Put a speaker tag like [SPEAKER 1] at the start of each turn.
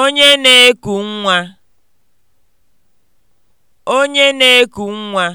[SPEAKER 1] Onye na-eku nwa. Onye na-eku nwa.